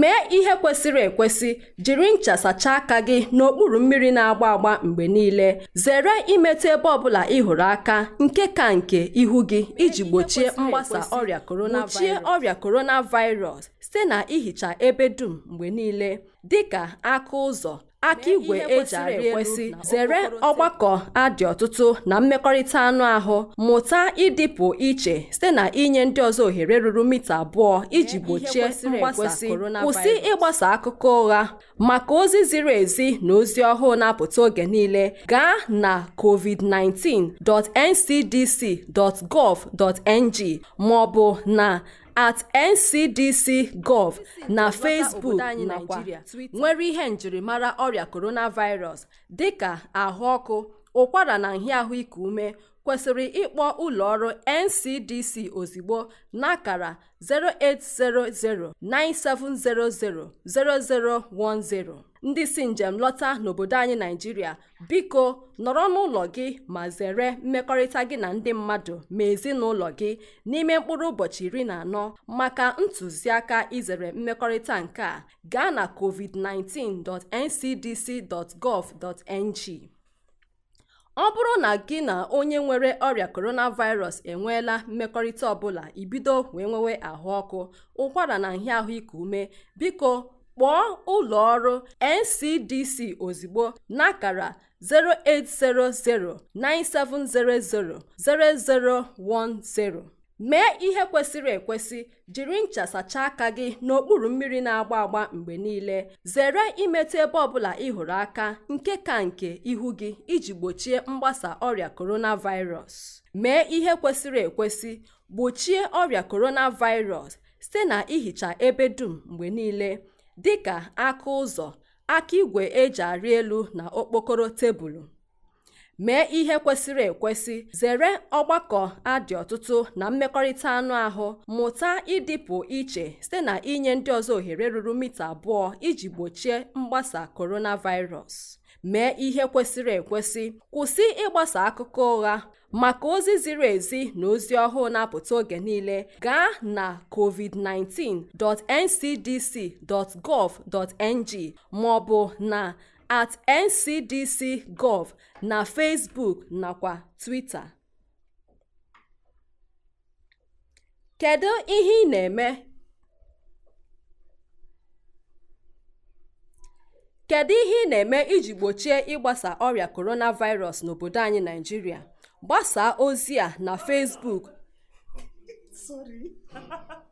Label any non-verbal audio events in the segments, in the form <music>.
mee ihe kwesịrị ekwesị jiri ncha sachaa aka gị n'okpuru mmiri na-agba agba mgbe niile zere imetụ ebe ọbụla ị hụrụ aka nke ka nke ihu gị iji gbochie mgbasa ọrịa coronavirus gbochie ọrịa site na ihicha ebe dum mgbe niile dị ka aka ụzọ aka igwe eji e arị ekwesị zere ọgbakọ adị ọtụtụ na mmekọrịta anụ ahụ mụta ịdịpụ iche site na inye ndị ọzọ ohere ruru mita abụọ iji gbochie mgbasa kwụsị ịgbasa akụkọ ụgha maka ozi ziri ezi na ozi ọhụụ na-apụta oge niile gaa na covid19.ncdc.gov.ng ma ọ bụ na at ncdc.gov na facebook nakwa nwere ihe njirimara ọrịa coronavirus ka ahụ ọkụ ụkwara na nhịahụ ahụike ume kwesịrị ịkpọ ụlọ ọrụ ncdc ozigbo n'akara 0800 9700 0010 ndị si njem lọta n'obodo anyị naijiria biko nọrọ n'ụlọ gị ma zere mmekọrịta gị na ndị mmadụ ma ezinụlọ gị n'ime mkpụrụ ụbọchị iri na anọ maka ntụziaka izere mmekọrịta nke a gaa na covid19.ncdc.gov.ng ọ bụrụ na gị na onye nwere ọrịa coronavirus enweela mmekọrịta ọbụla ibido wee nwewe ahụ ọkụ ụkwara na nhịa ahụike ume biko kpọọ ụlọ ọrụ NCDC ozugbo n'akara 0800 9700 0010 mee ihe kwesịrị ekwesị jiri ncha sachaa aka gị n'okpuru mmiri na-agba agba mgbe niile zere imetụ ebe ọbụla ị hụrụ aka nke ka nke ihu gị iji gbochie mgbasa ọrịa coronavirus mee ihe kwesịrị ekwesị gbochie ọrịa coronavirus site na ihicha ebe dum mgbe niile dịka aka ụzọ aka igwe eji arị elu na okpokoro tebụl mee ihe kwesịrị ekwesị zere ọgbakọ adị ọtụtụ na mmekọrịta anụ ahụ mụta ịdịpụ iche site na inye ndị ọzọ ohere ruru mita abụọ iji gbochie mgbasa coronavirus mee ihe kwesịrị ekwesị kwụsị ịgbasa akụkọ ụgha maka ozi ziri ezi na ozi ọhụụ na-apụta oge niile gaa na covid19.ncdc.gov.ng ma ọ na at ncdc.gov na facebook nakwa twitter kedu ihe ị na-eme iji gbochie ịgbasa ọrịa coronavirus n'obodo anyị naijiria gbasaa ozi a na facebook <laughs>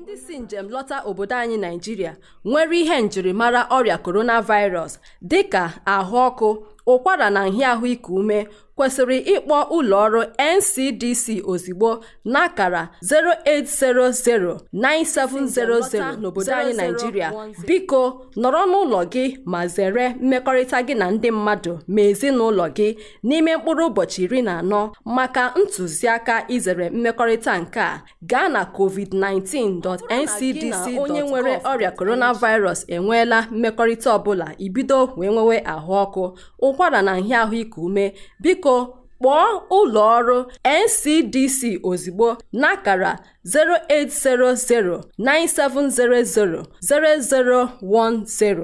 ndị si njem lọta obodo anyị naijiria nwere ihe njirimara ọrịa coronavirus dị ka ahụ ọkụ ụkwara na nhịa ahụike ume kwesịrị ịkpọ ụlọọrụ NCDC ozigbo n'akara 0800 9700 n'obodo anyị Naijiria biko nọrọ n'ụlọ gị ma zere mmekọrịta gị na ndị mmadụ ma ezinụlọ gị n'ime mkpụrụ ụbọchị iri na anọ maka ntụziaka izere mmekọrịta nke a gaa na covid 19ncdc onye nwere ọrịa coronavirus enweela mmekọrịta ọbụla ibido wee nwewe ahụ ọkụ ụkwara na nhịa ahụike ume biko kpọọ ụlọ ọrụ NCDC ozugbo n'akara 0800 9700 0010